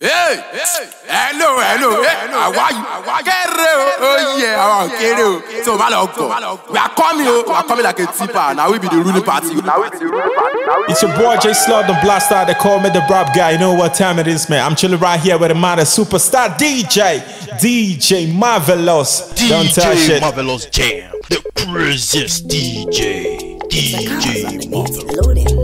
Hey, hey, hello, hello, hey, how are you? o, oh yeah, kere o. So ma lọ gọ̀. We are coming o, we are coming like a tipper. na we be the ruling party. It's your boy J Slot, the blaster. They call me the rap guy. You know what time it is, man. I'm chilling right here with the man, the superstar DJ, DJ Marvelous. DJ Don't shit, DJ Marvelous Jam, the craziest DJ, DJ Marvelous.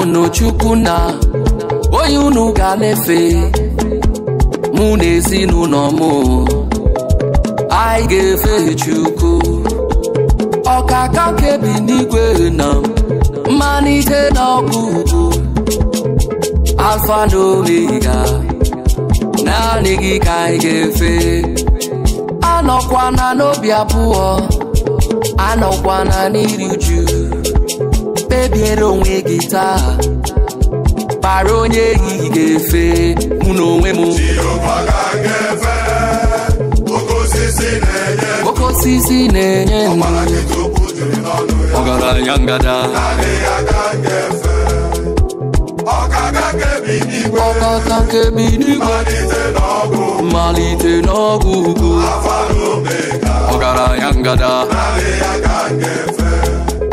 na chukwu na onye unu ga na-efe mụ na ezinụlọ m anyị ga-efe chukwu ọkaka bi n'igwe na ike na ọgụgụ Afa na omega naanị gị ka anyị ga-efe anọkwana n'obi abụọ anọkwana n'iri uju biere onwe gị taa kpara onye ehihie ga-efe mụ na onwe m okosisi na-enye ọgaranya ngada ọkaka nkebi n'igwe mmalite n'ọgwụ ugo ọgaranya ngada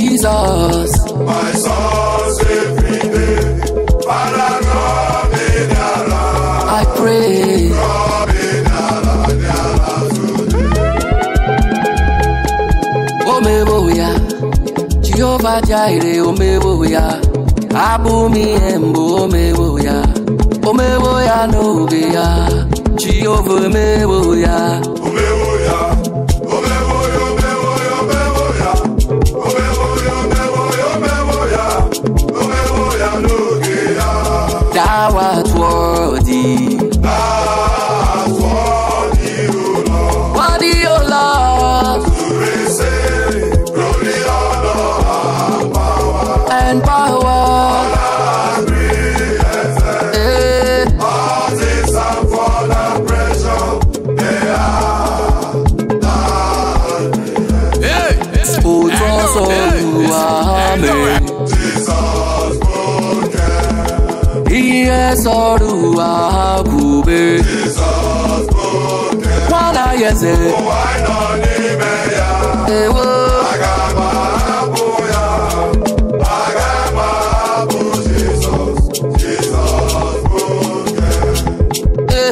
Jesus. My soul's every day. I pray. Omebo ya, Jehovah Jireh, omebo ya, abụ m ihe mbụ omebo ya, omebo ya n'oge ya, Jehovah omebo ya. Omebo ya. power tesoro ha kwube nwa anaghị eze ewo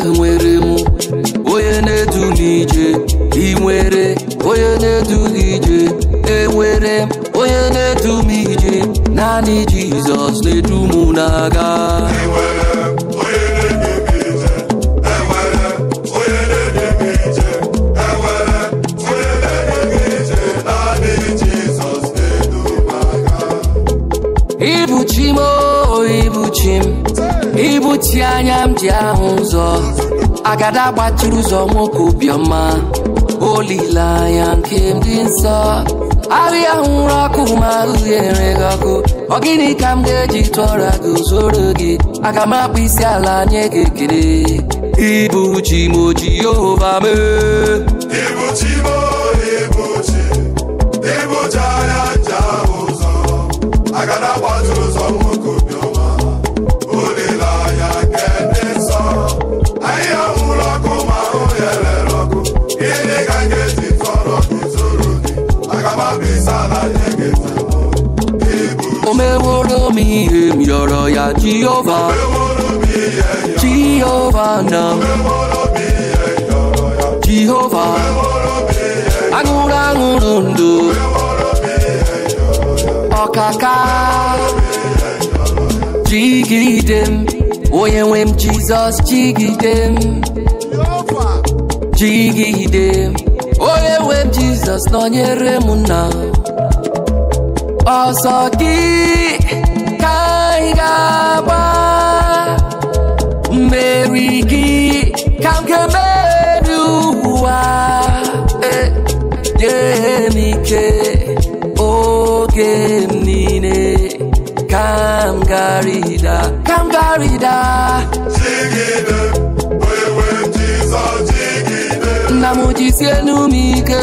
enwere m onye na-edu n'ije ị nwere onye na-edu n'ije enwere m onye na-edu m ije naanị Jizọs na-edu m n'aga ibuchi m oh, ibuchi m ibuchi anya m ji ahụ ụzọ agada gbatụrụ ụzọ nwoke obiọma olileanya nke m dị nsọ arị ahụ nwụrụ ọkụ ma ahụ nyere gị ọkụ ọgịnị ka m ga-eji tụọra gị zoro gị aga m akpụ isi ala nye gị ekele ịbụ chi m mee meworo m ihe m yọrọ ya Jehova Jehova na Jehova aṅụrụ aṅụrụ ndụ ọkaka jigide m onye nwe m Jizọs jigide m jigide onye nwe m Jizọs nọnyere m na ọsọ gị ka anyị ga-agba mmeri gị ka m ga-emeri ụwa nye eh, m ike oge m niile ka m garida ka m garida nna m jisie enu m ike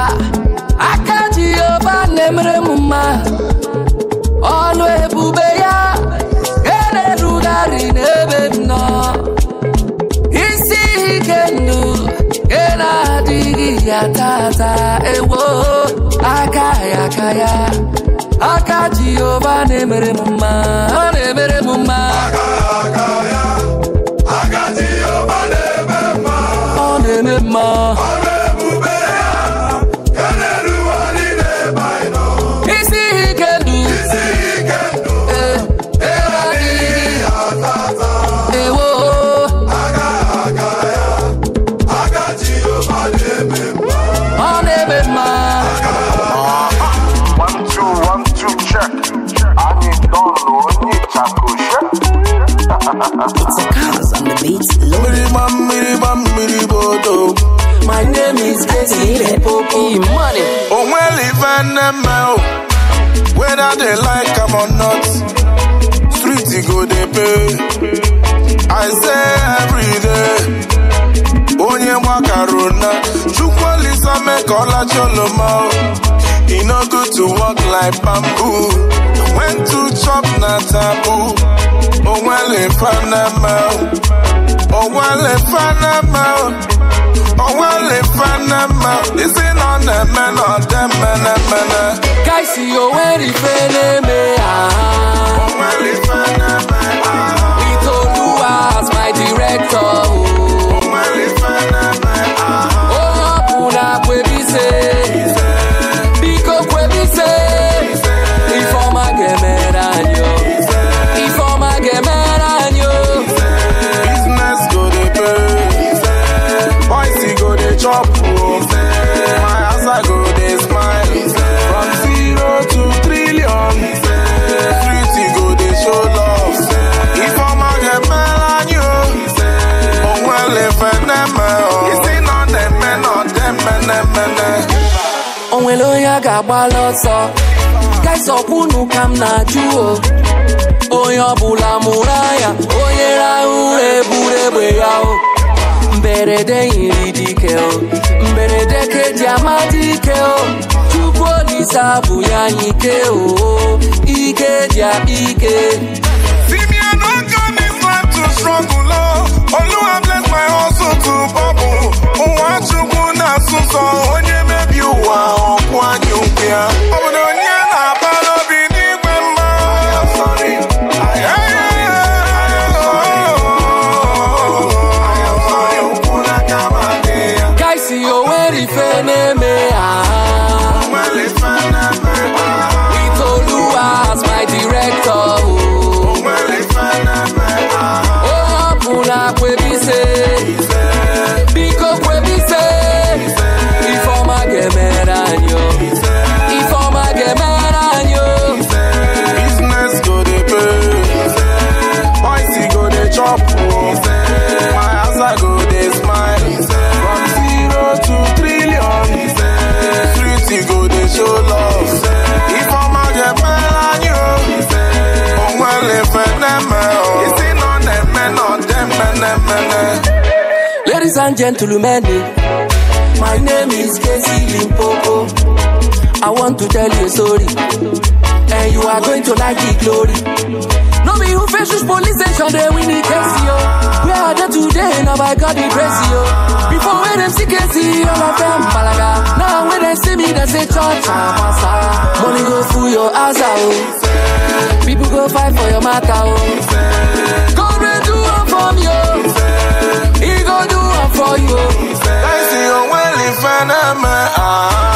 ya tata ewo aka ya aka ya aka Jehova na-emere m mma ọ na-emere m mma ọ na-eme mma them now. Whether they like them or not, street go they pay. I say every day, onye mwakaruna. Chukwalisa make all choloma. It no good to walk like bamboo. When to chop na taboo. Oh well, if I'm Oh well, if I'm onwelefanema isi na ọ na-eme na ọdemenemene kaisi onwere ife na-eme ya Onwere ife na-eme ya Itoluwa as my director agbala ọsọ kesọkwunu ka m na-ajụ o onye ọbụla mụrụ anya onye rahụ ụra egbe ya o mberede yiri dike o mberede keji amadị ike o tupu olise bụ ya anyị ike o ike dị ike onye mebi ụwa yeah. and gentlemen. Eh. My name is Casey Limpopo. I want to tell you a story, and you are going to like the glory. No be who faces police station, they win the case, yo. Where are they today? Now by God, the grace, Before when them see Casey, all of them balaga. Now when they see me, they say church, ah, pastor. Money go through your ass, ah, oh. People go fight for your matter, oh. fan of my eyes.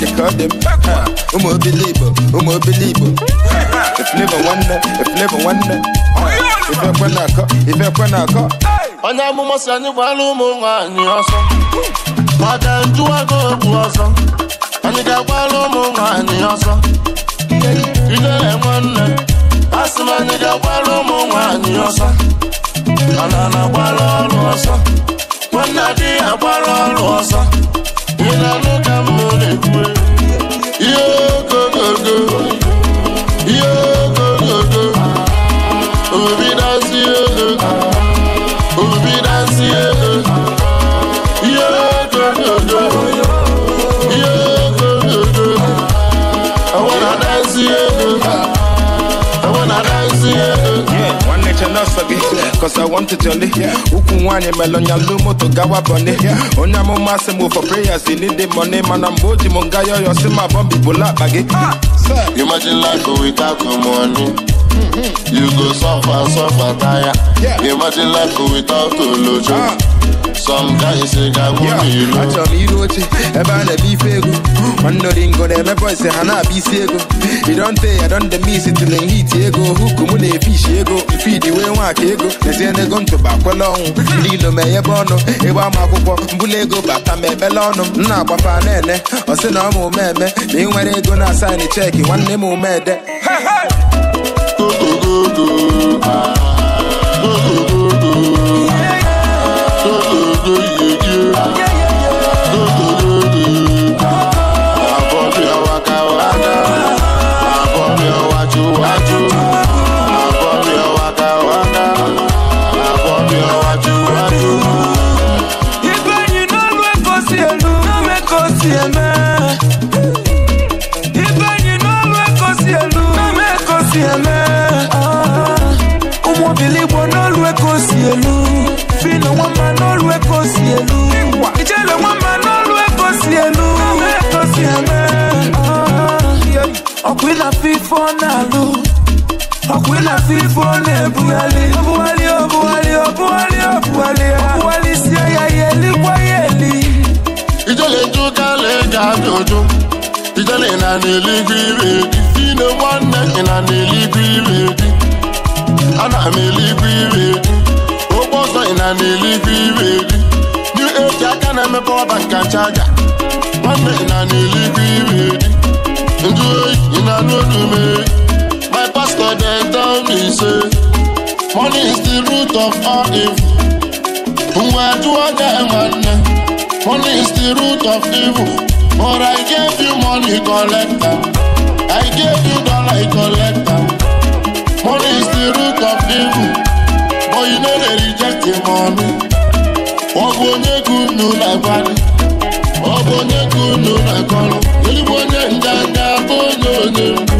they curb them. Umu believer, umu believer. If never wonder, if never wonder. If I can aka, if I can aka. Onye amụma si anyị gbara ụmụ nwaanyị ọsọ maka ntụwago egwu ọsọ anyị ga-agbara ụmụ nwaanyị ọsọ idere nwanne asị m anyị ga ụmụ ọsọ ọrụ ọsọ nwanne adịghị ọrụ ọsọ ị na-anụ ka m happy cause I want to tell you ukwu nwaanyị melonya lu moto gawa bọni onye amụma sị m for prayers you need the money mana mgbe o ji m nga yọyọ si ma bọmbi bụla akpa ah, gị imagine life without money mm-hmm. you go suffer suffer tire imagine life without olojo ah. some guys ga-agwụ n'ilu achọrọ m iru oche ebe a na-ebe ife ego nwanne ngo na-emebe ise ha na-abịa isi ego idonte ya don the miss till in hit ego huku mụ na-efishi ego fidi wee nwaka ego ezie n'ego ntụba kwele ọnwụ ndị ilo ma enyebe ọnụ ịgba ama akwụkwọ mbụla ego bata ma emela ọnụ m na-agbafa na-ele ọ sị na ọ ma omeme ma ị nwere ego na asaịn cheki nwanne m omede ife ọ na-alụ ọkwa ịlafe ọ na-ebugharị ọbụgharị ọbụgharị ọbụgharị si ya ya elikwa ya eli ijele ga abịa ụjụ ijele ị na n'eluigwe ire di ine nwanne ị na n'eluigwe ire di ana m eluigwe ire ọzọ ị na n'eluigwe aka na-emepe ọba nkacha nwanne ị na n'eluigwe Juju in a road me. My pastor they tell me say, money is the root of all evil. Money is the root of evil. But I gave you money collector. I gave you dollar collector. Money is the root of evil. But you know they reject the money. Ogbonye kunu na bani. Ogbonye kunu na kọlu. Eligbo onye nganga. gị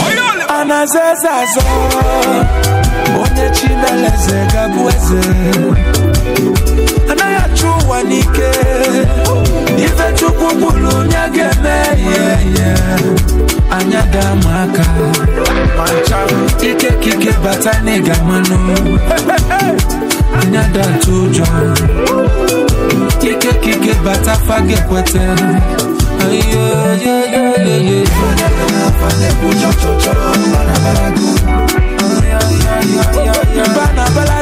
na aza eze azọ onye chineleze gabụ eze anaghị achụ ụwa n'ike ife chukwu bụrụ onye ga-eme ya anya daa ma aka ike bata n'ịga mmanụ anya daa atụ ụjọ ike bata fa ga-ekweta Bana bala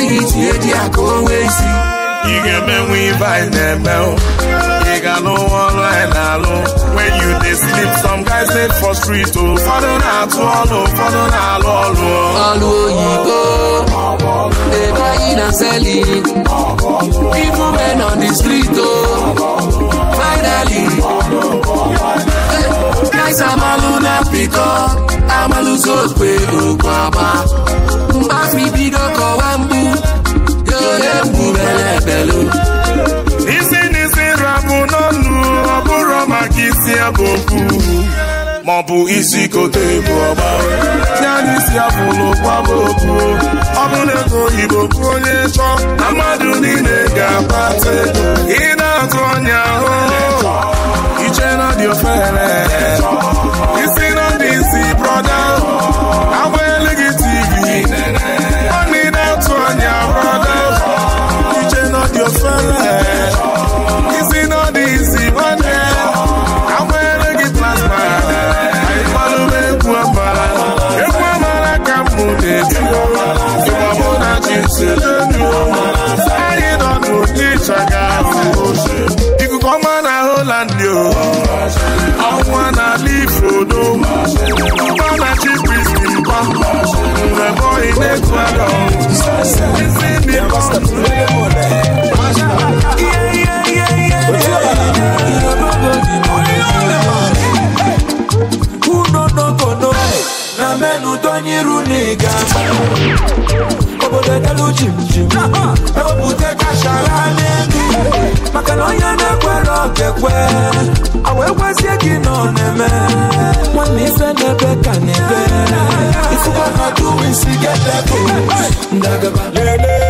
siri tinye ji ya ka ị ga-emenwe ibe anyị na-eme ị ga-alụ ọrụ anyị na-alụ you dey sleep some guys dey for oh. oh. oh. street o ụfọdụ na-atụ ọrụ ụfọdụ na-alụ ọlụ. Ọlụ oyibo na men on o finally amalụ na pịkọ agba mgbe pẹ̀lú. isi n'isi rabụ n'ọnụ ọ bụrụ maka isi abụ okwu bụ isi kote bụ ọgba ya n'isi abụ n'ụkwa bụ okwu ọ bụ na ego oyibo kwu onye chọ na mmadụ niile ga-akpata ego ị na-atụ ọnya ahụ iche na dị ofere isi na dị isi brọda jim jim ewepụta kashara n'elu maka na onye na-ekwere ọkekwe awa ekwezie gị nọ na-eme nwanne ife n'ebe ka na-ebe isikwa na duwisi gị ebe ndagaba lele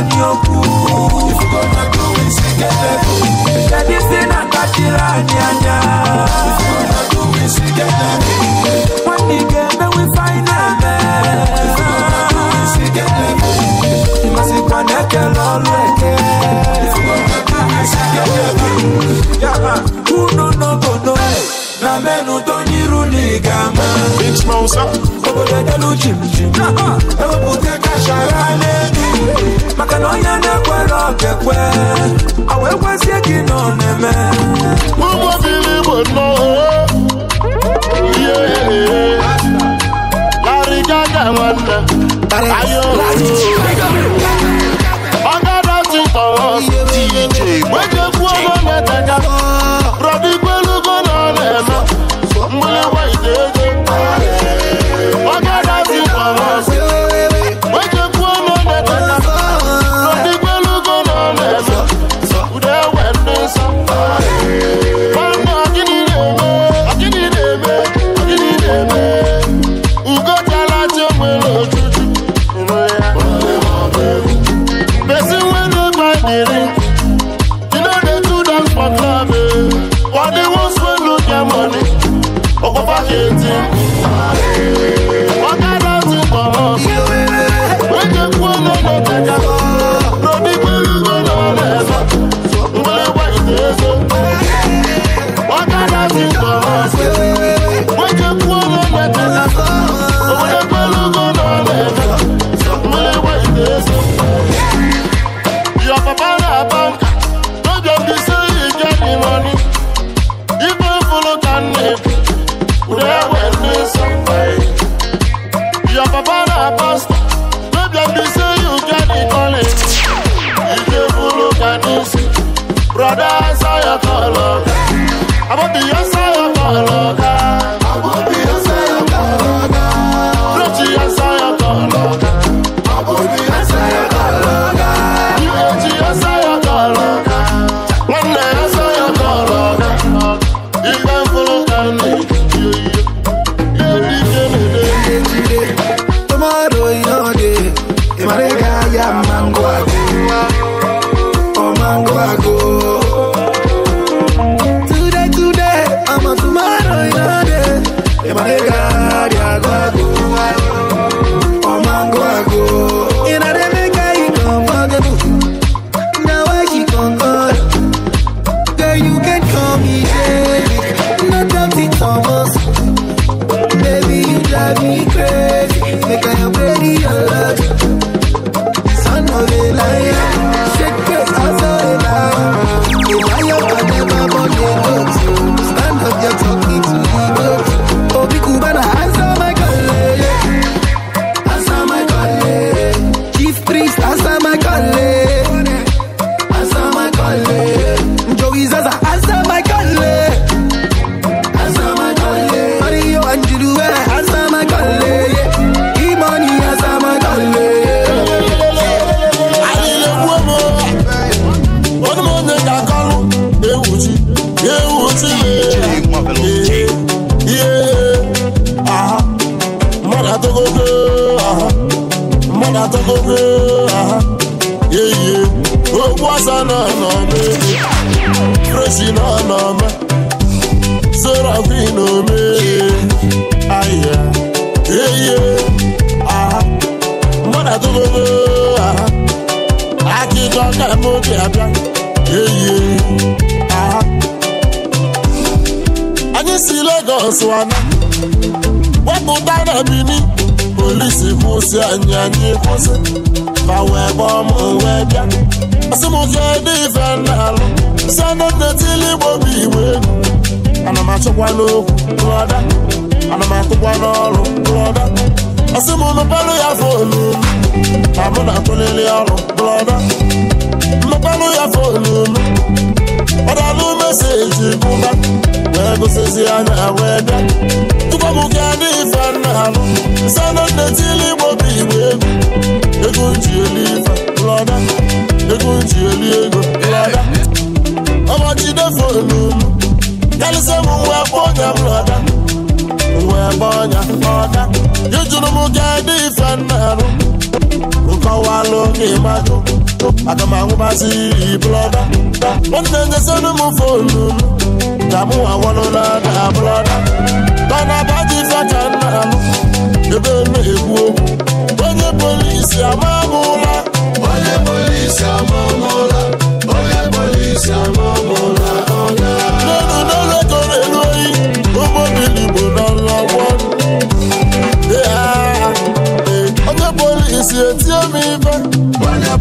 anyị okwu isi na-akpachiri anyị anya nwanne ị ga emewe ife anyị na-eme ịmasịkwa na-ekele ọlụ eke unu n'obodo na menụ obodo edelu chimchim ewepụta kashara n'elu maka na onye na-ekwere ọkekwe ọ wee kwezie gị na ọ na-eme ụgbọbili bụ nnọọ anyị kwụsị ma wee gbaa ọmụ onwe bịa asị m kedu ife na-alụ si anọdetili igbo bụ igbo ana m achọkwa n'okwu rụọda ana m atụkwa n'ọrụ rụọda asị m mepelụ ya ma mụ na akwụlili ọrụ ya ọdalụ meseji mụba wee gụsịzi anya wee bịa tụkwabụga na nna ha sanọ nne tili igbo bụ egwu ego eli ife lọda ego ji eli ego lọda ọmajidefonu karịsịa m nwa ọnya m lọda nwa ebe ọnya ọda ejuru m ga dị ife Nkọwa alụ aga m ahụbazi blọda nwanne nyezienụ m fonu m ka mụ awalụla na blọda mana badị faka nna m ebe na-ekwu onye polisi amamụla onye polisi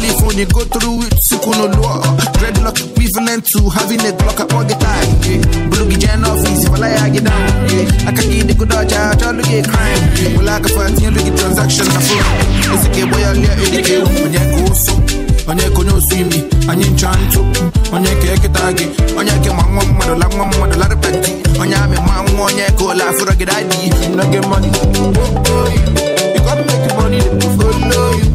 California, go through it, sikuno law. Dreadlock equivalent to having a block up all the time. Yeah. jan office, if I lie, I get down. Yeah. I can get the good dodge, crime. Yeah. Well, I can find look at transaction, It's a game where I it onye ka onye imi onye ncha onye ka eketa gị onye ka ma nwa mmadụ la mmadụ larịba onye amị ma onye ka ụlọ You gotta make money to follow you